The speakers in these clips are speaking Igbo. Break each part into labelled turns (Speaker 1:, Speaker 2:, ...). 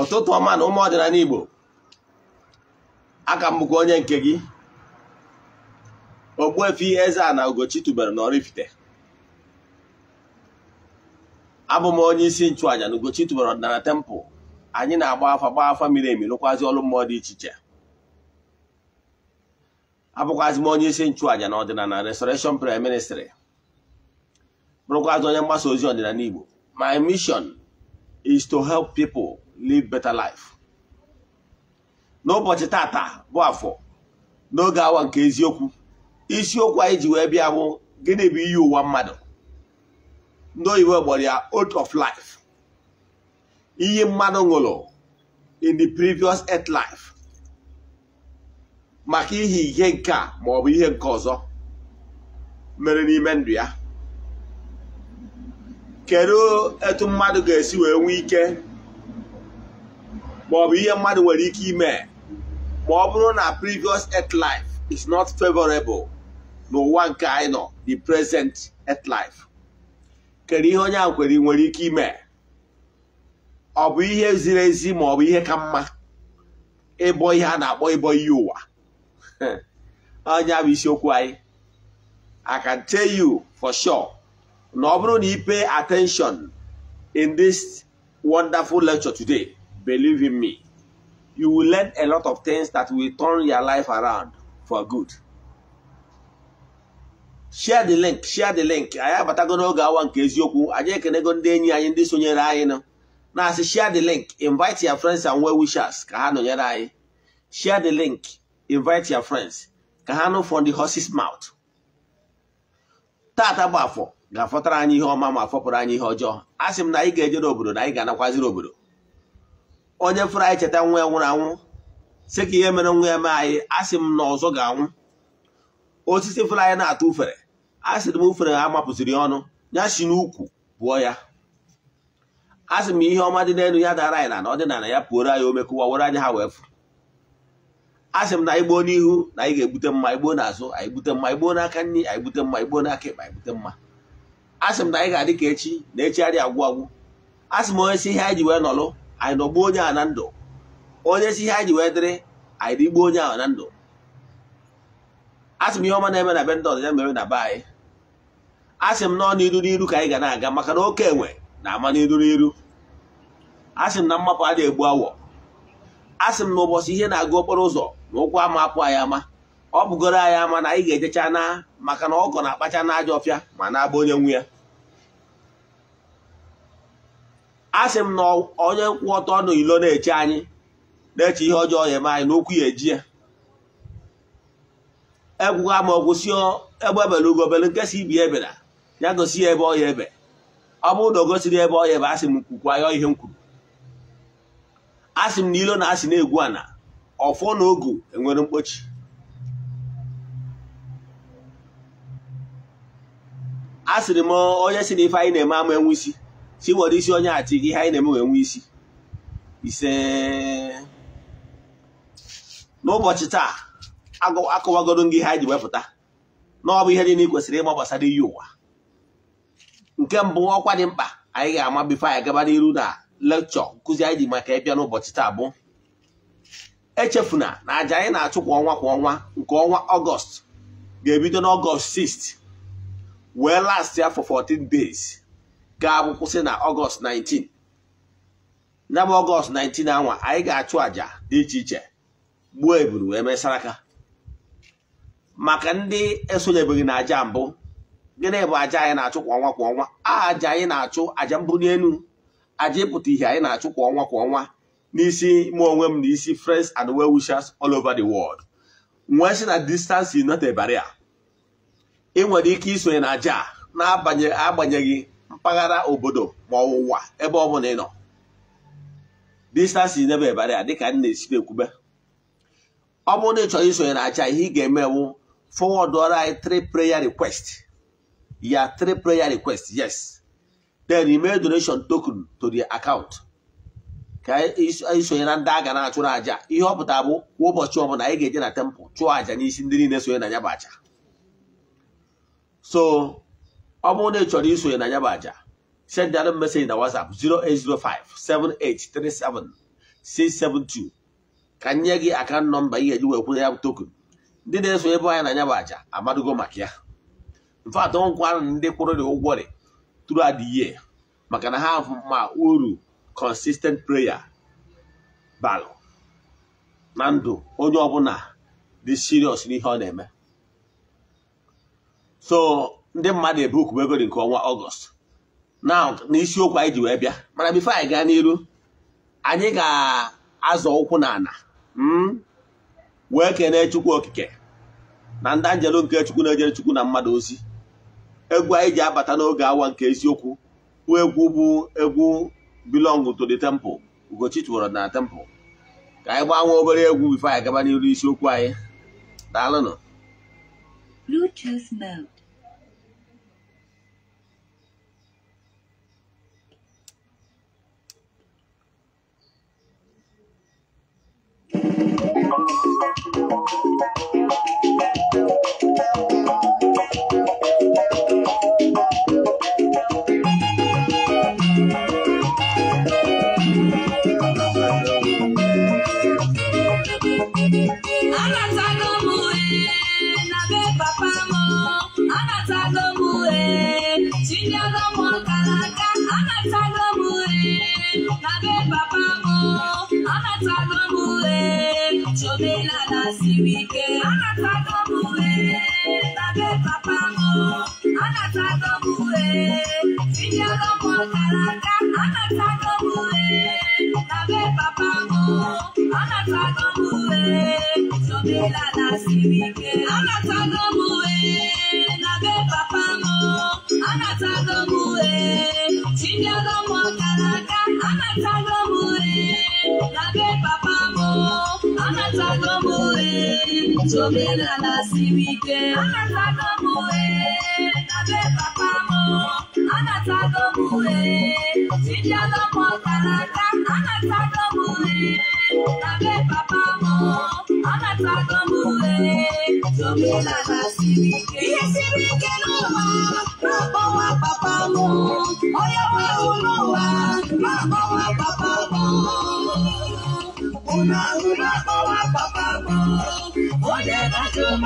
Speaker 1: ụtụtụ ọma na ụmụ ọdịnala Igbo aka m bụkwa onye nke gị Ogbuefi eze a na Oraifite abụ m onye isi nchụàja na Ugochi ọdịnala tempụl anyị na-agba afa gba afa miri emi lụkwazi ọlụ mmụọ dị iche iche abụkwazi m onye isi nchụàja na ọdịnala resoreshon Prayer Ministry bụrụkwazi onye mgbasa ozi ọdịnala Igbo my mission is to help people live better life n'ụbọchị tata bụ afọ n'oge awa nke eziokwu isiokwu anyị ji wee bịa hụ gịnị bụ iyi ụwa mmadụ ndị oyibo gbọrọ ya oath of life iyi mmadụ ṅụrụ in the previous earth life maka ihe ihe nke a maọbụ ihe nke ọzọ mere n'ime ndụ ya kedu etu mmadụ ga-esi wee nwee ike ma ọ bụ ihe mmadụ nwere ike ime ma ọ bụrụ na previous earth life is not favorable n'ụwa nke anyị nọ the present earth life kedu ihe onye a nwere ike ime ọ bụ ihe ziri ezi ma ọ bụ ihe ka mma ịbọ ihe a na-akpọ ịbọ ihe ụwa onye bụ isiokwu anyị I can tell you for sure na ọ bụrụ na ị pay attention in this wonderful lecture today believe in me you will learn a lot of things that will turn your life around for good share the link share the link anyị abatago n'oge awa nke eziokwu anyị ekenego ndị enyi anyị ndị sonyere anyị nụ na-asị share the link invite your friends and well wishers ka ha nọnyere anyị share the link invite your friends ka ha nụ from the horse's mouth taata bụ afọ ga-afọtara anyị ihe ọma ma fọpụrụ anyị ihe ọjọọ a sị m na anyị ga-ejere obodo na anyị ga-anakwaziri obodo onye fụrụ anyị cheta nwa ya nwụrụ anwụ sị ka ihe mere nwa ya mee anyị asị m na ọzọ ga-anwụ osisi fụrụ anyị na-atụ ufere a sịrị m ufere ha ya ọnụ ya si n'ukwu pụọ ya a sị m ihe ọma dị n'elu ya dara anyị na na ọdịnala ya pụoro anyị omekụwa kụwawere anyị ha wee fụ a sị m na anyị gboo n'ihu na anyị ga-egbute mma anyị gboo n'azụ anyị gbute mma anyị gboo n'aka nri anyị gbute mma anyị gboo n'aka ekpe anyị gbute mma asị m na anyị ga-adị ka echi na echi adị agwụ agwụ asị m onye si ihe anyị ji wee nọlụ anyị nọgbuo onye a na ndụ onye si ihe anyị ji wee dịrị anyị dịgbuo onye ahụ na ndụ asị m ihe ọma na-eme na be ndị ọzọ ya mere na be anyị asị m nọ n'iru n'iru ka anyị ga na-aga maka na oke enwe na-ama n'iru n'iru asị m na mmapụ adịghị egbu awọ asị m na ụbọchị ihe na-aga okporo ụzọ na ụkwụ ama apụ anyị ama ọ bụgoro anyị ama na anyị ga-ejecha na maka na ọkọ na-akpacha na aja ọfịa ma na-agba onye nwe ya a sị m na onye nkwụ ọtọ nọ ilo na-eche anyị na-eche ihe ọjọọ ya eme anyị n'okwu ya eji ya ekwughị ama ọgwụsị egbe ebe ugobele ugobere nke si ibi ebera ya gosi ya ebe ọya ebe ọ bụrụ na o gosiri ebe ọya ebe asị m kwukwa ya ihe m kwuru sị m na ilo na asị na-egwu ana ọfọ na ogo enwere mkpochi a sịrị m onye si na ife anyị na-eme ama enwe isi si were isi onye achị gị ihe anyị na-eme wee nwe isi ise n'ụbọchị taa akọwagoro gị ihe anyị ji wepụta na ọ bụ ihe niile kwesịrị ịma gbasara iyi ụwa nke mbụ ọkwa dị mkpa anyị ga-ama bifo anyị gaba n'iru na lekchọ nkụzi anyị ji maka ịbịa n'ụbọchị taa bụ echefuna na aja anyị na-achụ kwa ọnwa kwa ọnwa nke ọnwa ọgọst ga-ebido n'ọgọst 6 wee last ya for 14 days ga-abụ na ọgọst 19 ya bụ ọgọst 19 anwa anyị ga-achụ aja dị iche iche gbuo eburu wee saraka maka ndị esonyebeghị na aja mbụ gịnị bụ aja anyị na-achụ kwa ọnwa kwa ọnwa aja anyị na-achụ àjà mbụli elu àjà ịpụta ihe anyị na-achụ kwa ọnwa kwa ọnwa n'isi mụ onwe m n'isi isi friends and well wishers all over the world nwee si na distance not a barrier ị nwere ike isonye na aja na agbanyeghị mpaghara obodo ma ọwụwa ebe ọ bụla ị nọ distance n'ebe ebara ya dịka na-esi ekwube ọ bụrụ na ị chọrọ isonye na aja ihe ị ga-eme bụ ọrụ anyị three preya request ya three preya request yes then ime donation token to the account ka isonye na ndị a ga na-achụrụ aja ihe ọ pụtara bụ kwa ụbọchị ọbụla anyị ga-eje na temple chụọ aja n'isi ndị niile sonye na ya bụ aja so ọ bụrụ na ị chọrọ isonye na ya bụ aja send anyị message na WhatsApp 08057837672 ka nye gị aka nọmba ị ga-eji wee kwụnye ya bụ token ndị na-eso ebe na ya bụ aja amadugo maka ya mfat nkwarụ ndị kwụrụ dị ụgwọ dị tụrụ adịghị maka na ha ma uru consistent prayer balụ na ndụ onye ọbụla dị serious n'ihe ọ na-eme so ndị mmadụ ebuku bụ dị nke ọnwa ọgọst na n'isiokwu anyị ji wee bịa mana bifo anyị gaa n'iru anyị ga-azọ ụkwụ na ala hmm? wee kene chukwu okike na ndị anjelu nke chukwu na-ejere chukwu na mmadụ ozi egwu anyị ji abata n'oge awa nke eziokwu bụ egwu bụ egwu belong to the temple ugochi tụwara na temple ka anyị gbanwee obere egwu bifo anyị gaba n'iru isiokwu anyị daalụnụ
Speaker 2: Bluetooth mode.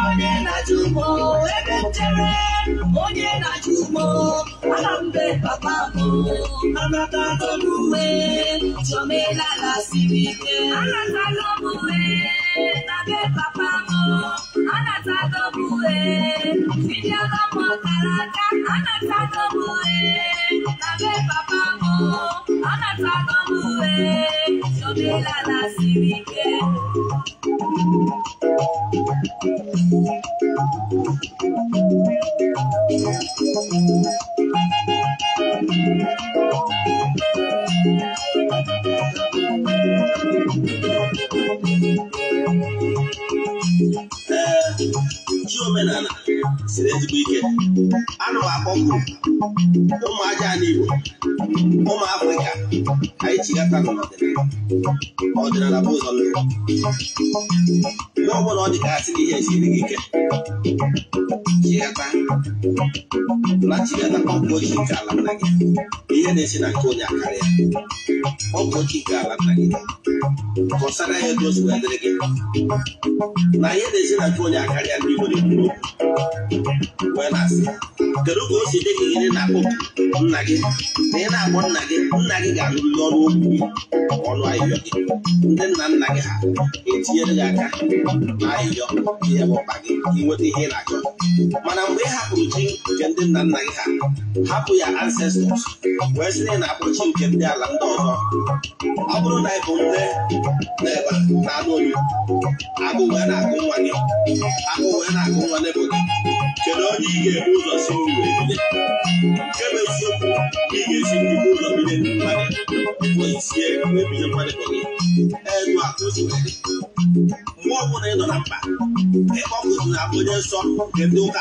Speaker 2: onye na-ajụ m ebe nchere onye na-ajụ m ana mbe papa m anatala m uwe chọmelala siri ike anatala m na be papa m anatala m uwe tinyela m ọkara aka anatala m na be papa m anatala m uwe chọmelala siri
Speaker 1: ọdịnala bụ a lụrụ ihe ọ bụla ọ dị ka ihe gị ike tinyekwa latinata ọ bụ oke ike ala nna gị ihe na-esi na nke onye akarịa ọ bụ oke ike ala nna gị kọsara ya edozi wee dịrị gị na ihe na-esi na nke onye akarịa ndị nwere kwuru okwu wee na-asị kedu ka o si dị gị gịnị na-akpọ nna gị na ị na-akpọ nna gị nna gị ga-alụrịrị ọrụ okwu ọnụ ahịhịọ gị ndị nna nna gị ha etinyere gị aka na ahịhịọ ihe ọkpa gị inweta ihe ị na-achọ Mana mgbe hapụrụ chi nke ndị nna nna ha hapụ ya ancestors wee sị na na-abụ chi nke ndị ala ndị ọzọ ọ bụrụ na ịbụ nne na ebe na anụ olu agụ wee
Speaker 2: na-agụ nwa gị agụ wee na-agụ nwa n'ebo gị kedu onye ị ga-ebu ụzọ si uru ebide nke bụ eziokwu ị ga-esi n'ibu ụzọ bido ndị mmadụ
Speaker 1: oisie ebido mmadụ gị ego akụ
Speaker 2: mgbe
Speaker 1: ọ bụla ị nọ na mba ịkpọkụzụ na abụ onye nsọ nke ndị ụka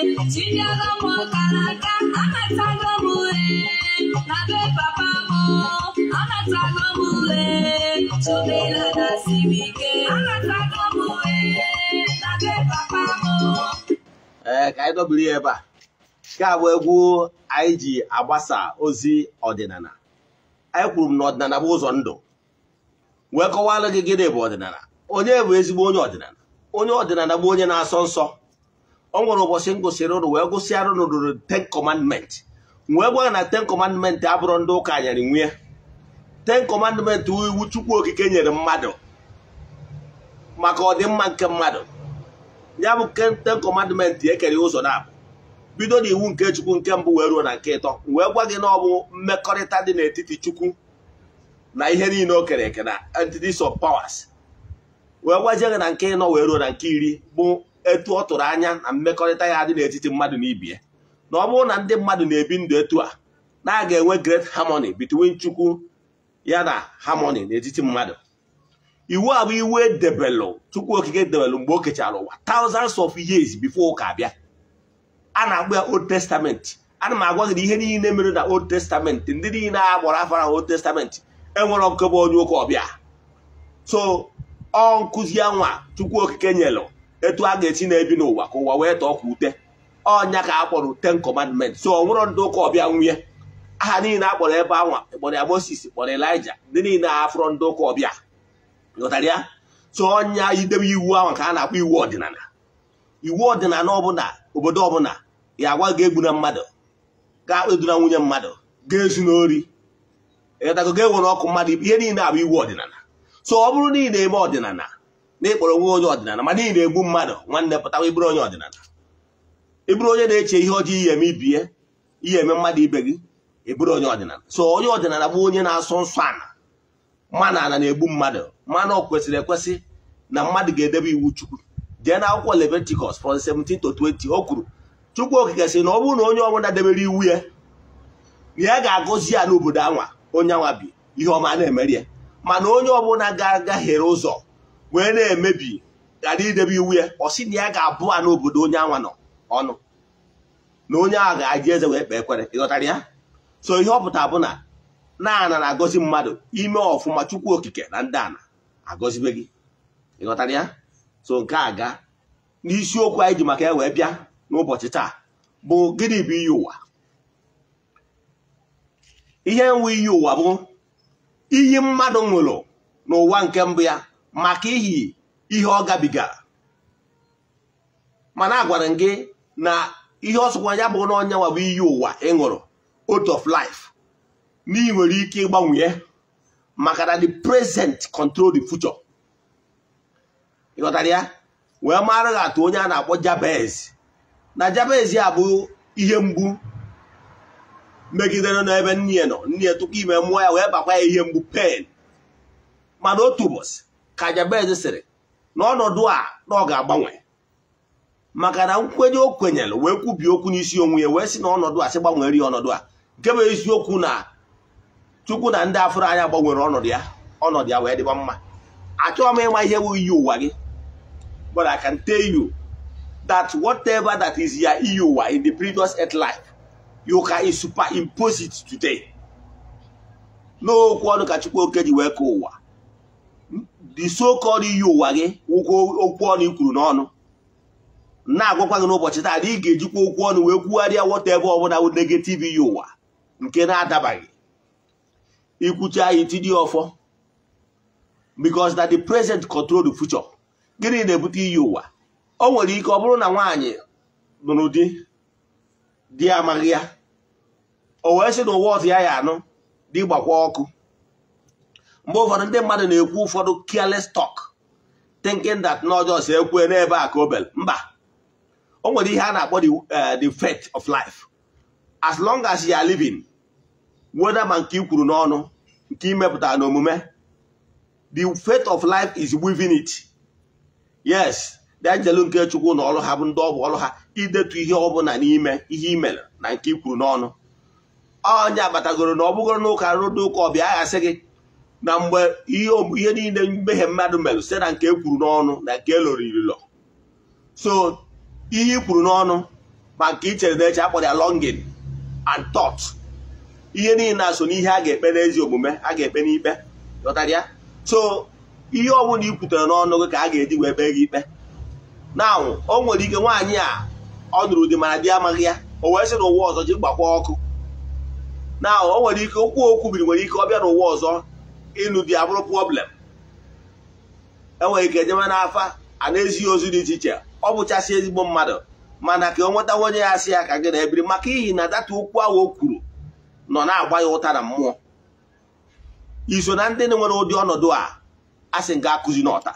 Speaker 2: n'aka papa na papa
Speaker 1: ee ka anyị dọburu ya ebe a Ka a bụ egwu anyị ji agbasa ozi ọdịnala anyị kwuru m na ọdịnala bụ ụzọ ndụ wee kọwara gị gịnị bụ ọdịnala onye bụ ezigbo onye ọdịnala onye ọdịnala bụ onye na-asọ nsọ o nwere ụbọchị m gụsịrị ụrụ wee gụsịara ụrụ ruru ten commandment wee gwa na ten commandment abụrụ ndị ụka nyere nwunye ten commandment iwu chukwu okike nyere mmadụ maka ọdịmma nke mmadụ ya bụ ten commandment ekere ụzọ na-abụ bido na iwu nke chukwu nke mbụ wee ruo na nke ịtọ wee e gwa gị na ọ bụ mmekọrịta dị n'etiti chukwu na ihe niile o kere eke na entities of powers wee gwazie gị na nke ịnọ wee ruo na nke iri bụ etu ọ tụrụ anya na mmekọrịta ya dị n'etiti mmadụ na ibi ya na ọ bụrụ na ndị mmadụ na-ebi ndụ etu a na aga enwe great harmony between chukwu ya na harmony n'etiti mmadụ iwu a bụ iwu edebelụ chukwu okike debelụ mgbe o kechara ụwa thousands of years before ụka bịa a na-agba ya old testament ana m agwa gị na ihe niile mere na old testament ndị niile a gbara afọ old testament enwere bụ onye ụka ọbịa so ọ nkụzi nwa chukwu okike nyelụ etu a ga-esi na-ebi n'ụwa ka ụwa wee tọọ kwa ute ọnya ka a kpọrọ ten commandment so ọ ndị ụka ọbịa nwunye aha niile a kpọrọ ebe anwa e kpọrọ ya Moses e kpọrọ Elijah ndị niile afọrọ ndị ụka ọbịa ghọtara ya so ọnya idebe iwu ahụ ka a na-akpọ iwu ọdịnala iwu ọdịnala ọbụla obodo ọbụla ya agwa ga-egbu na mmadụ ga-akpeduna nwunye mmadụ ga-ezu n'ori ịghọtago ga-enwere ọkụ mmadụ ihe niile abụ iwu ọdịnala so ọ bụrụ na na-eme ọdịnala na ịkpọrọ onwe onye ọdịnala ma n'ihi na-egbu mmadụ nwanne pụtawa ịbụrụ onye ọdịnala ịbụrụ onye na-eche ihe ọjọọ ihe eme ibie ihe eme mmadụ ibe gị ịbụrụ onye ọdịnala so onye ọdịnala bụ onye na-asọ nsọ ala mana ala na-egbu mmadụ mmanụ ọ kwesịrị ekwesị na mmadụ ga-edebe iwu chukwu jee na akwụkwọ Leviticus from 17 to 20 o kwuru chukwu okike sị na ọ bụrụ na onye ọbụla debere iwu ya na ya ga-agọzi ya n'obodo anwa onye anwa bi ihe ọma na-emeri ya mana onye ọbụla ga-agaghere ụzọ wee na-emebi ghara idebe iwu ya ọ sị na ya ga-abụ a n'obodo onye anwa nọ ọnụ na onye ahụ ga-aji eze wee kpee ekwere ịghọtara ya so ihe ọ pụta bụ na naana na-agọzi mmadụ ime ọfụma chukwu okike na ndị ana agọzibe gị ịghọtara ya so nke a ga n'isiokwu anyị ji maka ya wee bịa n'ụbọchị taa bụ gịnị bụ iyi ụwa ihe nwe iyi ụwa bụ iyi mmadụ nwụrụ n'ụwa nke mbụ ya maka ihi ihe ọ gabigara mana a agwara gị na ihe ọsọkwa ya bụ na ọnya iyi ụwa ị ṅụrụ out of life na ị nwere ike ịgbanwe maka na the present control the future ịghọtara ya wee mara gị atụ onye a na-akpọ Jabez na Jabez ya bụ ihe mgbu megidere n'ebe nne nọ nne tụkwa ime mmụọ ya wee bakwa ya ihe mgbu pen mana otu ụbọchị ka Jabez sịrị n'ọnọdụ a na ọ ga-agbanwe maka na nkwenye o kwenyere wee kwubi okwu n'isi onwe ya wee si na a sị gbanwere ya ọnọdụ a nke bụ eziokwu na chukwu na ndị afọrọ anya gbanwere ọnọdụ ya ọnọdụ ya wee dịba mma achọghị m ịma ihe bụ iyi ụwa gị but I can tell you that whatever that is ya iyi ụwa in the previous earth life you can superimpose it today n'okwu ọnụ ka chukwu oke ji wee kee ụwa the so iyi e ụwa gị okwu ọnụ i n'ọnụ na-agwakwa gị n'ụbọchị taa ị ga-ejikwa okwu ọnụ wee kwugharịa wọta ebe ọbụla bụ negative iyi e ụwa nke na-adabaghị ikwucha ya itinye ọfọ because na the present control the future gịnị na-ebute iyi e ụwa o nwere ike ọ bụrụ na nwaanyị nụrụ di di amaghị ya o wee sị na ụwa ọtụ ya ya anụ dị gbakwa ọkụ mgbe ụfọdụ ndị mmadụ na-ekwu ụfọdụ careless talk thinking that na ọjọọ si ekwe n'ebe a ka mba o nwere ihe a na-akpọ the eh, faith of life as long as you are living weda ma nke i kwuru n'ọnụ nke imepụtara n'omume the faith of life is within it yes denjelu nke chukwu na ọrụ ha bụ ndị ọbụ ọrụ ha idetu ihe ọbụla n'ime ihe imere na nke ikwuru kwuru n'ọnụ onye abatagoro na ọ bụgoro n'ụka rụrụ ụka ọbịa aghasị gị na mgbe ihe niile mmehie mmadụ merụ site na nke e kwuru n'ọnụ na nke eloro ililo so ihe i kwuru n'ọnụ ma nke ichere chere n'eche akpọrọ ya and tot. ihe niile na-aso n'ihe a ga-ekpe n'ezi omume a ga-ekpe n'ikpe ghọtara ya so ihe ọbụla i kwutere n'ọnụ gị ka a ga-eji wee kpee gị ikpe na o nwere ike nwaanyị a ọ nụrụ di mara di amaghị ya o wee sị n'ụwa ọzọ ji gbakwa ọkụ na o nwere ike okwu okwu biri nwere ike ọ bịa n'ụwa ọzọ ịlụ di abụrụ problem enwere ike jebe n'afa a na-ezighị ozu dị iche iche ọ bụchasị ezigbo mmadụ mana ka ọ nwetawa onye ya asị ya ka gị na-ebiri maka ihi na data okwu ahụ o kwuru nọ na-agba ya ụta na mmụọ iso na ndị nwere ụdị ọnọdụ a asị nga akụzi n'ọta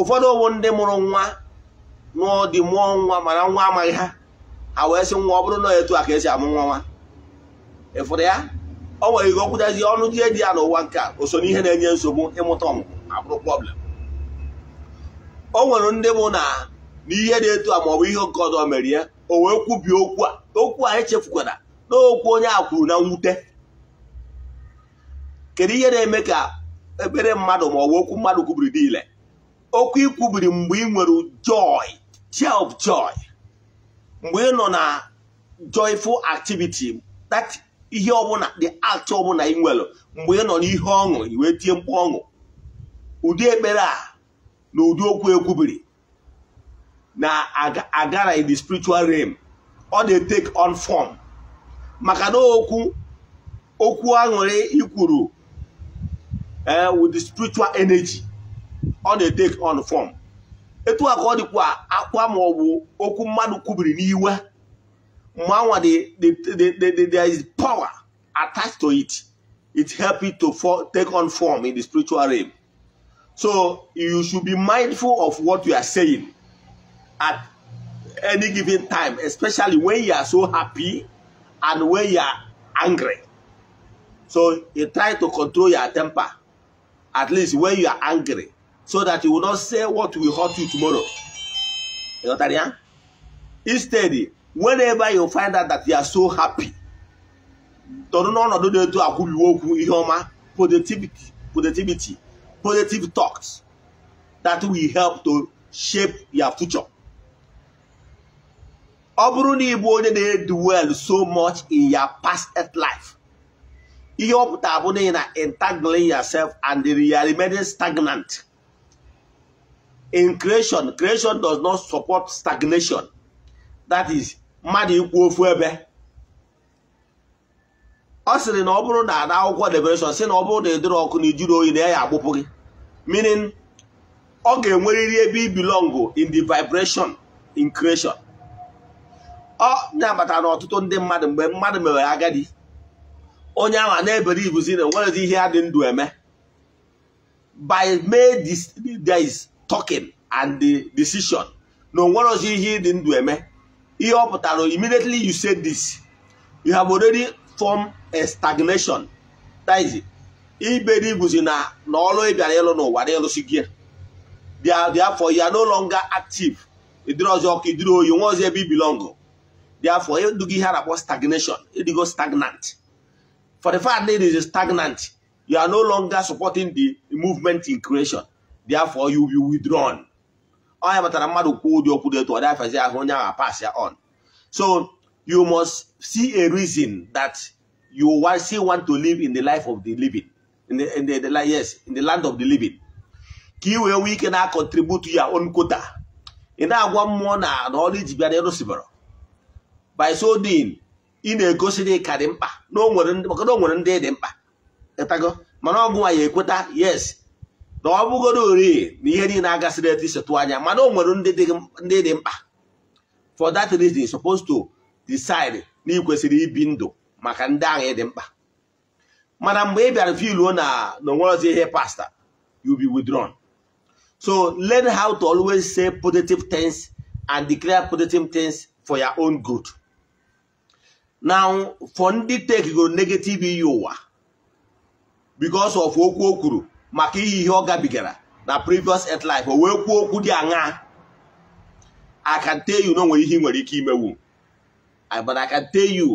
Speaker 1: ụfọdụ owu ndị mụrụ nwa n'ụdị mụọ nwa mana nwa amaghị ha ha wee sị nwa ọ bụrụ na etu a ka esi amụ nwa nwa ịfụrụ ya o nwere ihe okwutazi ọnụ die dị ya n'ụwa nke a o so n'ihe na-enye nsogbu ịmụta ọmụmụ ma problem o nwere ndị mụ na n'ihe dị etu a ma ọ bụ ihe nke ọzọ ya o wee kwubie okwu a okwu a echefukwara na okwu onye a kwuru na mwute kedu ihe na-eme ka ekpere mmadụ ma ọ bụ okwu mmadụ kwubiri dị okwu ikwubiri mgbe ị nwere joy cheer of joy mgbe ị nọ na joyful activity that ihe ọbụla dị atụ ọbụla ị nwere mgbe ị nọ n'ihe ọṅụ iwe wee tie mkpu ọṅụ ụdị ekpere a na ụdị okwu ekwubiri na agara in the spiritual realm ọ dị take on form maka na okwu okwu aṅụrị ikwuru eh, with the spiritual energy ọ dị take on form etu a ka ọ dịkwa akwa ma okwu mmadụ kwubiri n'iwe Mwanwa, the, the, the, the, there is power attached to it. It helps it to for, take on form in the spiritual realm. So you should be mindful of what you are saying at any given time, especially when you are so happy and when you are angry. So you try to control your temper, at least when you are angry, so that you will not say what will hurt you tomorrow. You know what I mean? Instead, whenever you find out that you are so happy tọrọ n'ọnọdụ na-eto akwụbiwe okwu ihe ọma positivity positivity positive talks that will help to shape your future ọ bụrụ na ịbụ onye na-edu well so much in your past life ihe ọ pụtara bụ na ị na-entangling yourself and the are remaining stagnant in creation creation does not support stagnation that is mmadụ ikwu ofu ebe ọ sịrị na ọ bụrụ na ada akwụkwọ debereshọn si na ọ bụrụ na ịdịrị ọkụ na ijiri oyi na ya agbụpụ gị minin ọ ga-enwerịrị ebe i in the vibration in creation ọ na ọtụtụ ndị mmadụ mgbe mmadụ mere agadi onye ahụ a na-ebere ibuzi na enwerezi ihe ya dị ndụ eme by made this talking and the decision na onwerozi ihe dị ndụ eme ihe ọ pụtara immediately you say this you have already formed a stagnation taizi iberi bụzi na na ọrụ ị bịara ịlụ n'ụwa na ịlụsi gị therefore you ya no longer active ịdịrị ọzọ ọkụ ịdịrị oyi nwa ọzọ ebe ibilọngụ therefore ịdụgo ihe a na-akpọ stagnation ịdịgo stagnant for the fact that it is stagnant you are no longer supporting the movement in creation therefore you will be withdrawn onye batara mmadụ kwuo ụdị okwu dị otu ọ dịafazi ahụ onye ahụ apas ya on so you must see a reason that you want still want to live in the life of the living in the, in the, the, yes in the land of the living ka ị wee nwee ike na contribute ya own kota. ị na-agwa mmụọ na na ọrụ iji bịa na ịrụsibara by so doing ị na-egosi dị ka dị mkpa maka na o nwere ndị dị mkpa ịtago mana ọgụ nwa ya ekweta yes na ọ bụgoro ori na ihe niile agasịrị etu isetụ anya mana o nwere ndị dị mkpa for that reason supposed to decide na ị ibi ndụ maka ndị ahụ dị mkpa mana mgbe ị bịara filuo na na onwerozi ihe pasta you be withdrawn so learn how to always say positive things and declare positive things for your own good now for ndị go negative iyi ụwa bicos of okwu o kwuru maka ihe ihe ọ gabigara na previous earth life o wee kwuo okwu dị aṅa I can tell you nwere ihe ị nwere ike imewu but I can tell you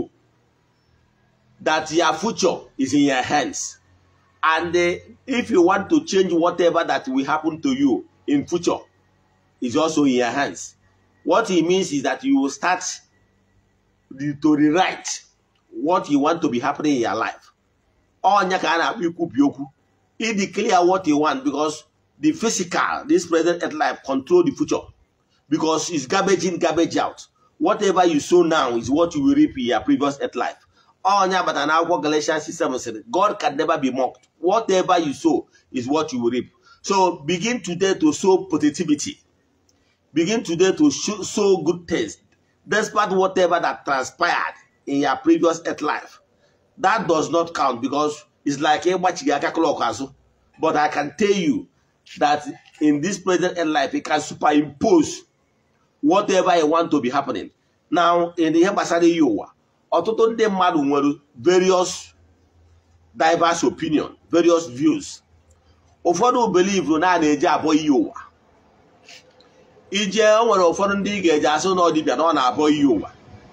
Speaker 1: that your future is in your hands and eh, if you want to change whatever that will happen to you in future is also in your hands what it means is that you will start to rewrite what you want to be happening in your life ọnya ka a na-akpọ ikwubi okwu He declare what he want because the physical, this present earth life, control the future. Because it's garbage in, garbage out. Whatever you sow now is what you will reap in your previous earth life. Onye agbata n'akwụkwọ Galatians 7 said, God can never be mocked. Whatever you sow is what you will reap. So begin today to sow positivity. Begin today to sow good things. Despite whatever that transpired in your previous earth life. That does not count because is like ịgbachighị aka klọk azụ but I can tell you that in this present end life, you can superimpose whatever you want to be happening. Now, in ihe gbasara ihe ụwa, ọtụtụ ndị mmadụ nwere various diverse opinion, various views. Ụfọdụ believe na a na-eji ihe ụwa. Ije o nwere ụfọdụ ndị ị ga eje asụ na ọdịbịa na ọ na-abọ ihe ụwa.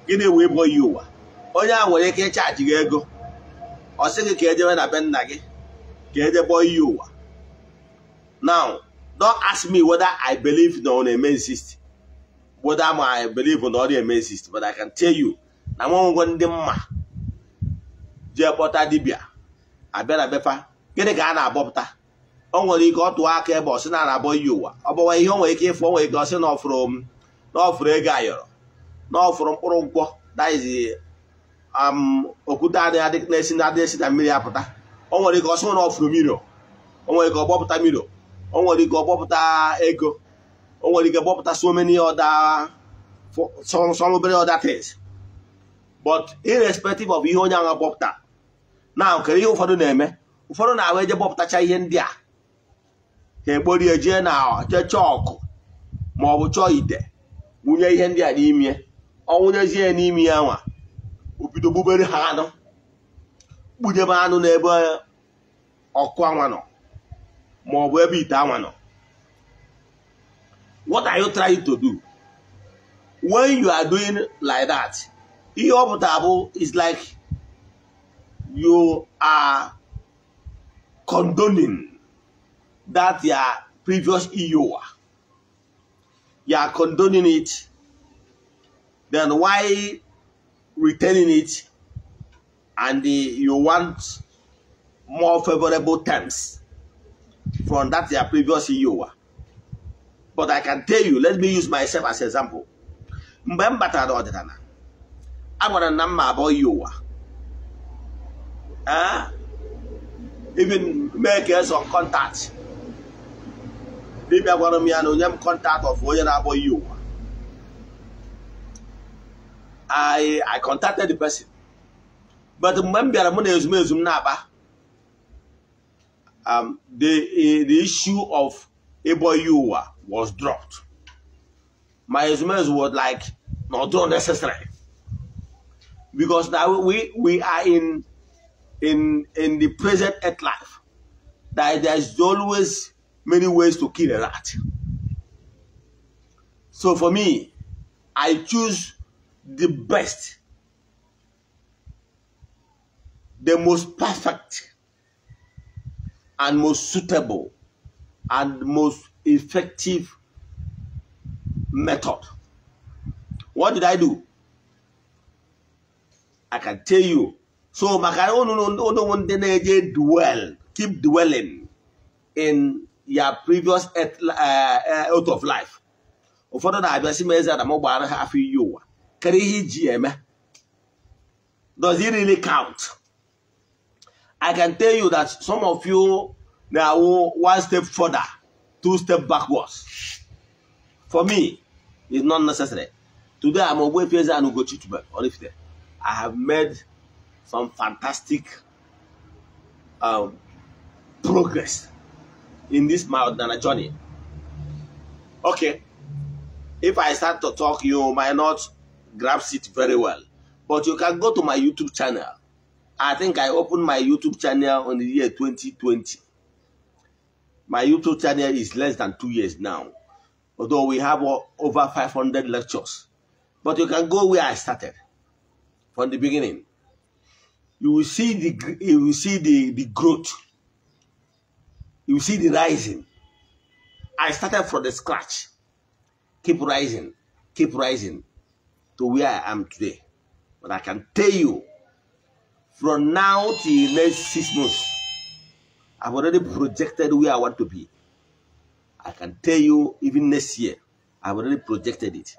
Speaker 1: Gịnị wee bọ ihe ụwa? Onye a nwere ike ịchaji gị ego ọ sị gị ka ejebe na be nna gị ka ejebe oyi ụwa now don't ask me whether I believe na ọ na-eme insist whether I believe na ọ na-eme insist but I can tell you na nwanwego ndị mma jee kpọta dibịa abịa na befa gịnị ka a na-abọpụta o nwere ike ọ tụọ aka ebe ọ sị na anabọ iyi ụwa ọ bụwa ihe o nwere ike ịfụ o nwere ike ọ sị na ọfụrụ ego ayọrọ na ọfụrụ mkpụrụ nkwọ that is okwute adịghị na-esi na adịghị esi na mmiri apụta o nwere ike ọsọ na ọfụrụ o nwere ike ọgbọpụta miro o nwere ike gbọpụta ego o nwere ike gbọpụta so many other obere other things but irrespective of ihe onye ahụ gbọpụta na nkere ihe ụfọdụ na-eme ụfọdụ na-ahụ eje gbọpụtacha ihe ndị a ha egborie jee na jee chọọ ọkụ ma ọ bụ chọọ ite wunye ihe ndị a n'ime ọ wụnyezie n'ime ya nwa bido gbubere ha anụ kpunyebe anụ n'ebe ọkụ anwa nọ ma ọ bụ ebe ite anwa nọ what are you trying to do when you are doing like that ihe ọ pụtara bụ is like you are condoning that your previous iyowa e you are condoning it then why returning it and the, you want more favorable terms from that their previous CEO. But I can tell you, let me use myself as example. Mgbe m batara ọdịnala, a gwara na mma abụọ eh? Even make some contact. Dibịa gwara m ya na onye m contact of onye na-abụọ yi ụwa. I I contacted the person but mgbe m bịara mụ na ezumezu m na um, the the issue of Eboyi was dropped my ezumezu was like not necessary because now we we are in in in the present earth life that there is always many ways to kill a rat so for me I choose the best, the most perfect, and most suitable, and most effective method. What did I do? I can tell you. So, oh, dwell, keep dwelling in your previous earth, uh, earth uh, of life. ụfọdụ na-abịa si m eze na m gbara ha afọ iyi kedu ihe iji eme does it really count i can tell you that some of you na-awụ one step further two step backwards for me it's not necessary today i'm Ogbuefi Eze-Ana Ugochi Oraifite i have made some fantastic um, progress in this my ordinary journey okay if i start to talk you might not grasps it very well. But you can go to my YouTube channel. I think I opened my YouTube channel on the year 2020. My YouTube channel is less than two years now, although we have over 500 lectures. But you can go where I started from the beginning. You will see the you will see the, the growth. You will see the rising. I started from the scratch. Keep rising, keep rising to where I am today. But I can tell you, from now till next six months, I've already projected where I want to be. I can tell you, even next year, I've already projected it.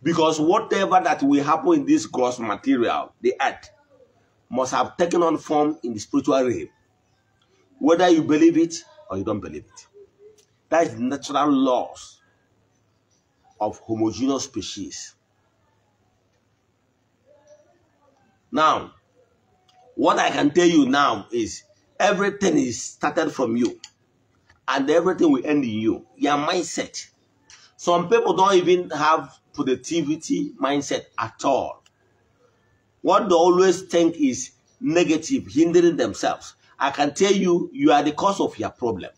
Speaker 1: Because whatever that will happen in this gross material, the earth, must have taken on form in the spiritual realm. Whether you believe it or you don't believe it. That is natural laws of homogeneous species. Now, what I can tell you now is everything is started from you, and everything will end in you. Your mindset. Some people don't even have productivity mindset at all. What they always think is negative, hindering themselves. I can tell you, you are the cause of your problem.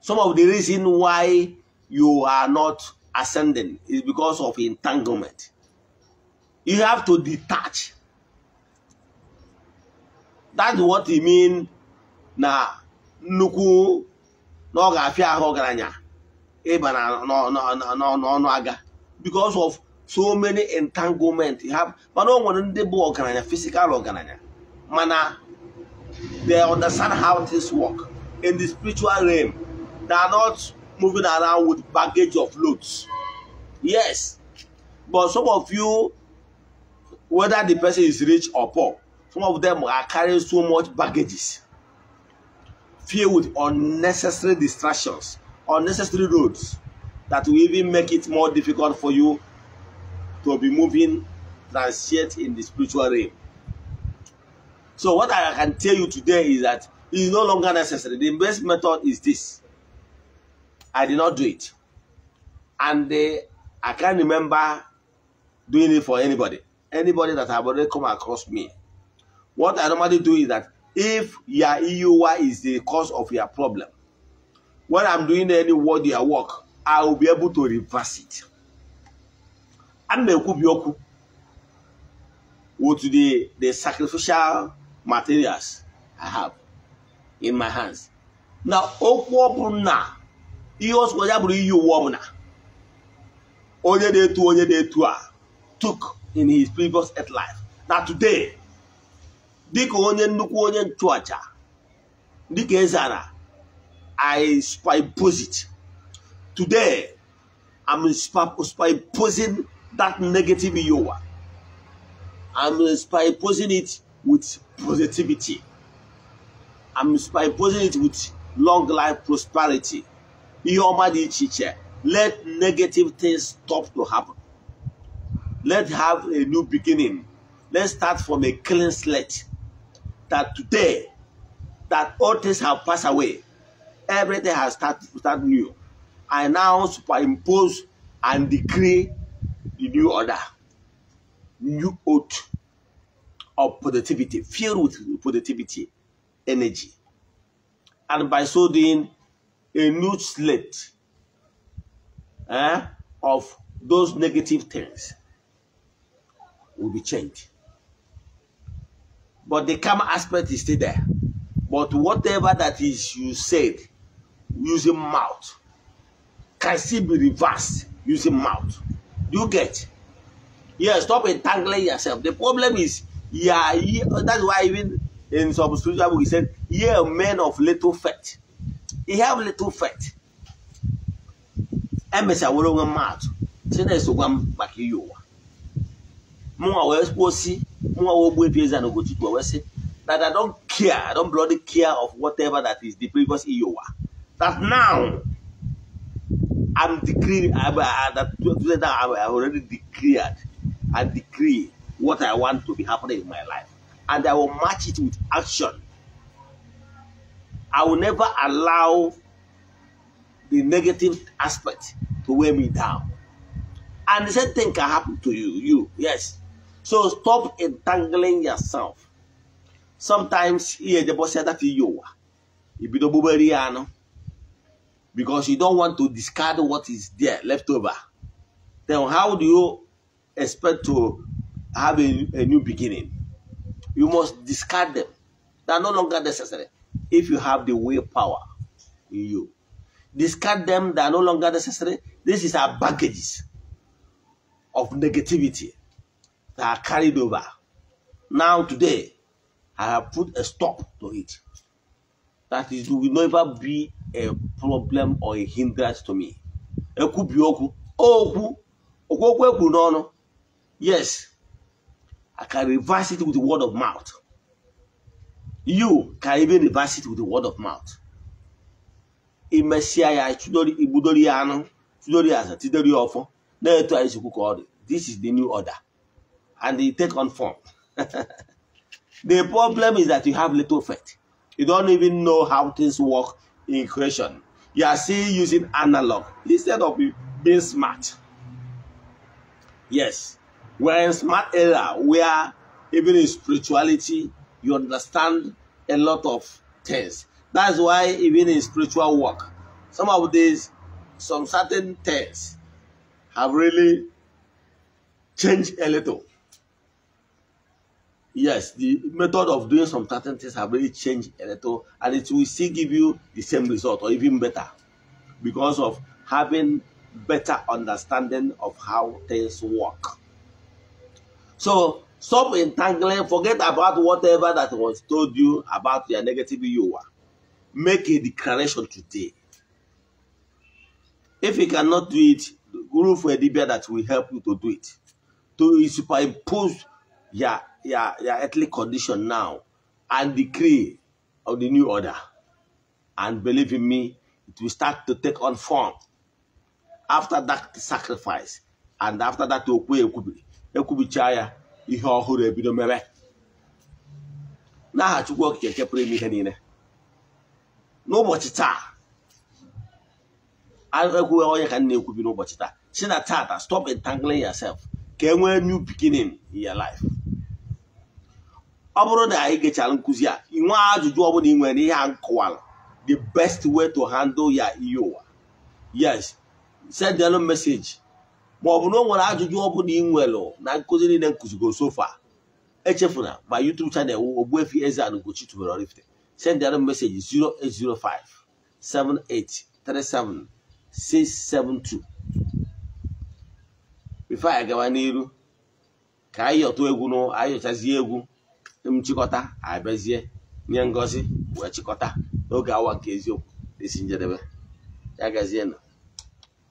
Speaker 1: Some of the reason why you are not ascending is because of entanglement. You have to detach. That's what e mean na nnukwu na ọ ga-afịa ahụ ọgaranya ịba n'ọnụ aga because of so many entanglement have mana o nwere ndị bụ ọgaranya physical ọgaranya mana they understand how things work in the spiritual realm they are not moving around with baggage of loads yes but some of you whether the person is rich or poor. Some of them are carrying so much baggages, filled with unnecessary distractions, unnecessary roads that will even make it more difficult for you to be moving transient in the spiritual realm. So what I can tell you today is that it is no longer necessary. The best method is this. I did not do it. And uh, I can't remember doing it for anybody. anybody that have already come across me. What I normally do is that if your EUI is the cause of your problem, when I'm doing any your work, I will be able to reverse it. And mekubioku with the, the sacrificial materials I have in my hands. Now, okwu na ihe ọsọ ya bụrụ iyi uwe ọbụla onye na-etu onye na-etu a took in his previous earth life Now today dịka onye nnukwu onye nchụaja dịka ezara i spyposit today i'm spyposing that negative yowa i'm spyposing it with positivity i'm spyposing it with long life prosperity ihe ọma let negative things stop to happen Let's have a new beginning. Let's start from a clean slate. That today, that all things have passed away. Everything has started start new. I now superimpose and decree the new order, new oath of productivity, filled with productivity, energy. And by so doing, a new slate eh, of those negative things will be changed. But the karma aspect is still there. But whatever that is you said using mouth can still be reversed using mouth. Do you get? Yeah, stop entangling yourself. The problem is, yeah, yeah that's why even in some spiritual book he said, yeah, men of little faith. He have little faith. Emesa woro mouth. Say I'm back you. mụnwa wee kwuo si mụnwa wee gbuo ebi eze na Ugochukwu wee sị that I don care I don't bloody care of whatever that is the previous iowa e that now I'm decree I, I, that today that I, I already declared I decree what I want to be happening in my life and I will match it with action I will never allow the negative aspect to weigh me down. And the same thing can happen to you. You, yes. So stop entangling yourself. Sometimes here the boss said that you are. Because you don't want to discard what is there left over. Then how do you expect to have a, a new beginning? You must discard them. They are no longer necessary if you have the willpower in you. Discard them, they are no longer necessary. This is our baggage of negativity that are carried over. Now, today, I have put a stop to it. That is, it will never be a problem or a hindrance to me. Ekwubi okwu, okwu, okwu okwu ekwuru n'ọnụ. Yes, I can reverse it with the word of mouth. You can even reverse it with the word of mouth. Imesịa ya igbudori anu anụ, tudori ya aza, tidori ya ọfọ, na-eto anyị sikwu ka This is the new order. and it take on form. the problem is that you have little faith. You don't even know how things work in creation. You are still using analog instead of being smart. Yes, we're in smart era where even in spirituality you understand a lot of things. That's why even in spiritual work, some of these, some certain things have really changed a little yes, the method of doing some certain things have really changed a little, and it will still give you the same result or even better because of having better understanding of how things work. So stop entangling, forget about whatever that was told you about your negative you are. Make a declaration today. If you cannot do it, go for a that will help you to do it. To superimpose your ya your earthly condition now and decree of the new order. And believe in me, it will start to take on form after that sacrifice and after that okwu ekwubiri ekwubichaa chaya ihe ọhụrụ ebido mere n'aha Chukwu Okike nke pụrụ ime ihe niile n'ụbọchị taa ekwughị onye ka m na-ekwubi n'ụbọchị taa si na taa stop entangling yourself ka e nwee new beginning in your life. ọ bụrụ na anyị gechara nkụzi a inwe ajụjụ ọbụla ị nwere ihe a nkọwara the best way to handle ya ihe ụwa yes send elu meseji ma ọ bụ na ọ nwere ajụjụ ọbụla ị nwere na nkụzi niile nkụzigo sofa echefuna ma YouTube channel Ogbuefi Eze-Ana Ugochi tubelu Oraifite send elu meseji 0805 7837 672 bifo anyị gawa n'iru ka anyị yọtụ egwu anyị yọchazie egwu nchịkọta abịazie nye ngozi wee chịkọta n'oge awa nke eziokwu esi njedebe ya gazienụ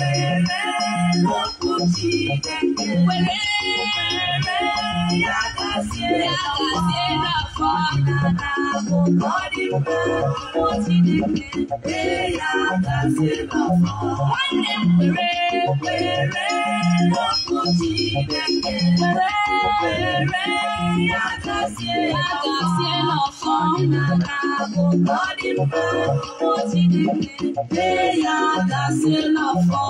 Speaker 2: Body, body, body, body,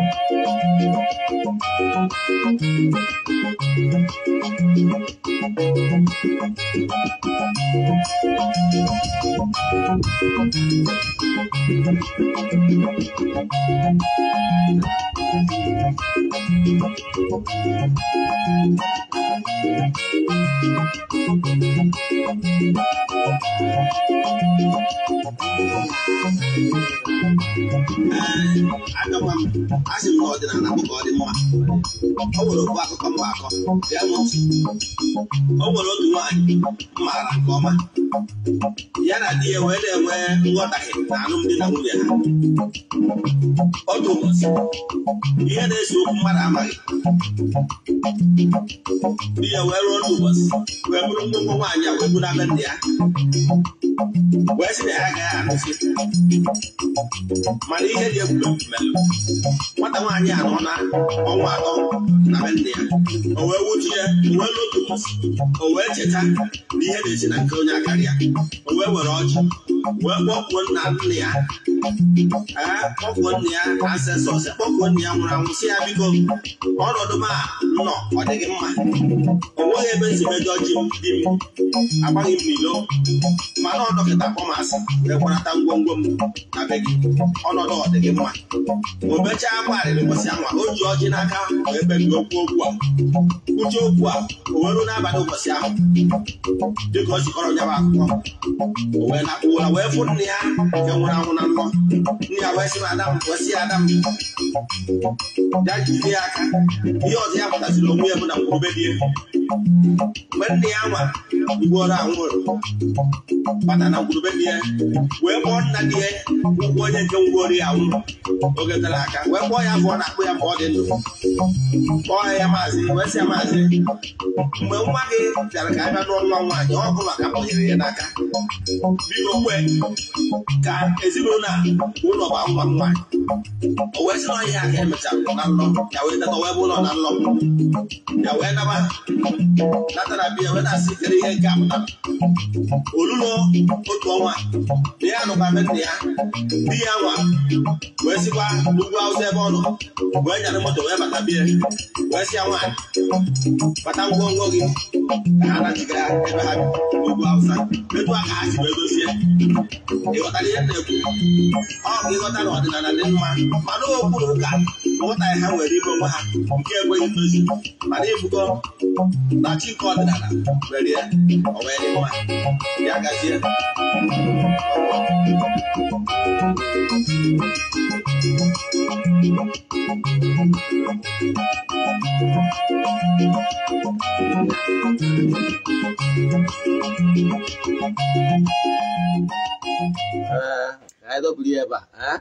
Speaker 2: I know I'm Asị sị m na ọdịnala ka ọ dị mma Ọ nwere ofu akụkọ mma akọ bịa n'otu
Speaker 1: Ọ nwere otu nwaanyị maara nke ọma ya na di ya wee na-enwe nghọtahie na alụmdi na nwunye ha Ọ ụbọchị ihe na-ese okwu mmadụ amaghị di ya wee rụọ otu ụbọchị wee bụrụ nnukwu nwaanyị a wee bụrụ abe ndị ya wee sị na ya agaghị anụsị mana ihe dị egwuregwu melụ nwata nwaanyị a nọ na ọnwa atọ na be nne ya o wee wutu ya wee lotu o wee cheta na ihe na-esi na nke onye akara ya o wee were ọjị wee kpọkwuo nna nne ya kpọkwuo nne ya asesọ kpọkwuo nne ya nwụrụ anwụ si ya biko ọnọdụ m a nọ ọ dịghị mma o nweghị ebe nzimedo ọjị dị m agbaghị m n'ilo mana ọ dọkịta kpọmasị wee ngwongwo m na be gị ọnọdụ ọ dịghị mma akwa arịrị ụbọchị anwa o ji ọjị n'aka wee kpebido okwu okwu a kwuche okwu a o wee n'abalị ụbọchị
Speaker 2: ahụ dịka ọ jikọrọ ya bụ akwụkwọ o wee na ụwa wee fụ nne ya
Speaker 1: nke nwụrụ anwụ na
Speaker 2: mmụọ nne ya wee sị na ada m wee ya ada ya ya aka
Speaker 1: ihe ọzọ ya pụtasịrị onwe ya bụ na nkwurube dị mgbe nne ya ma mgbuoro anwụrụ bata na ngwurube dị ya wee kpọọ nna dị ya ụkwụ onye nke ngwuoro ya nwụrụ oge gara aka wee kpọọ ya afọ na-akpụ ya ma dị ndụ kpọọ ya maazị wee sị ya maazị mgbe nwa gị bịara ka abịa n'ụlọ nwaanyị ọ bụ maka mkpọnyere ya n'aka biko kwe ka ezinụlọ ụlọ gba nwa nwaanyị o wee sị na ọhịa ka emechara na nlọ ya wee tata wee bụ ụlọ na nlọ ya wee naba natara bịa wee na-asị kere ihe nke apụta olulo otu ọnwa na ya nụkwana nna ya di ya nwa wee sikwa n'ugwu awụsa ebe ọ nọ wee nyere moto wee bata bịa wee sịa nwa bata ngwongwo gị ka ha nachiga
Speaker 2: ebe ha n'ugwu awụsa etu a ka ha si wee dozie ịghọtara ihe na-ekwu ọ ka ịghọta na ọdịnala dị mma
Speaker 1: mana okwu na ụka nghọtaghị ha nwere ime onwe ha nke ekweghị ndozi mana ịbụgo na chi nke ọdịnala
Speaker 2: were ya ọ wee dị mma ya gazie ebe
Speaker 1: a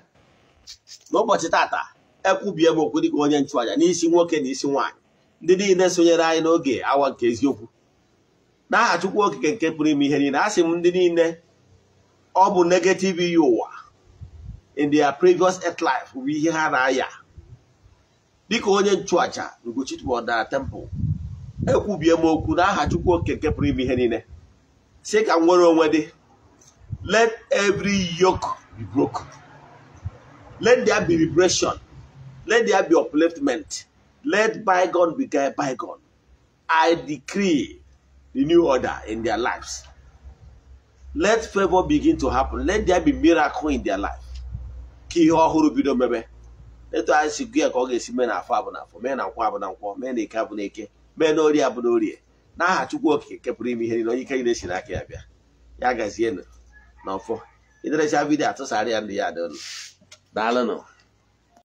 Speaker 1: n'ụbọchị tata ekwubie m okwu dịka onye nchụaja n'isi nwoke na isi nwaanyị ndị niile sonyere anyị n'oge awa nke eziokwu n'aha Chukwu okike nke pụrụ ime ihe niile asị m ndị niile ọ bụ negative iyi ụwa in their previous earth life bụ ihe ha na-aya dịka onye nchụaja Ugochitubodara temple ekwubie m okwu n'aha Chukwu okike nke pụrụ ime ihe niile si ka m nwere onwe dị let every yoke be broken let there be liberation let there be upliftment Let bygone be bygone. I decree the new order in their lives. Let favor begin to happen. Let there be miracle in their life. Ka ihe ọhụrụ bido mebe. Etu anyị si gụ ka ọ ga-esi mee na afọ abụ na afọ, mee na nkwọ abụ na nkwọ, mee na eke abụ na eke, mee na orie abụ na orie. N'aha Chukwu Okike kepụrụ ime ihe niile onye ike niile si n'aka ya bịa. Ya gazienụ n'ọfọ. Iderecha vidiyo atụsara ya ndị ya dị ụnụ. Daalụnụ.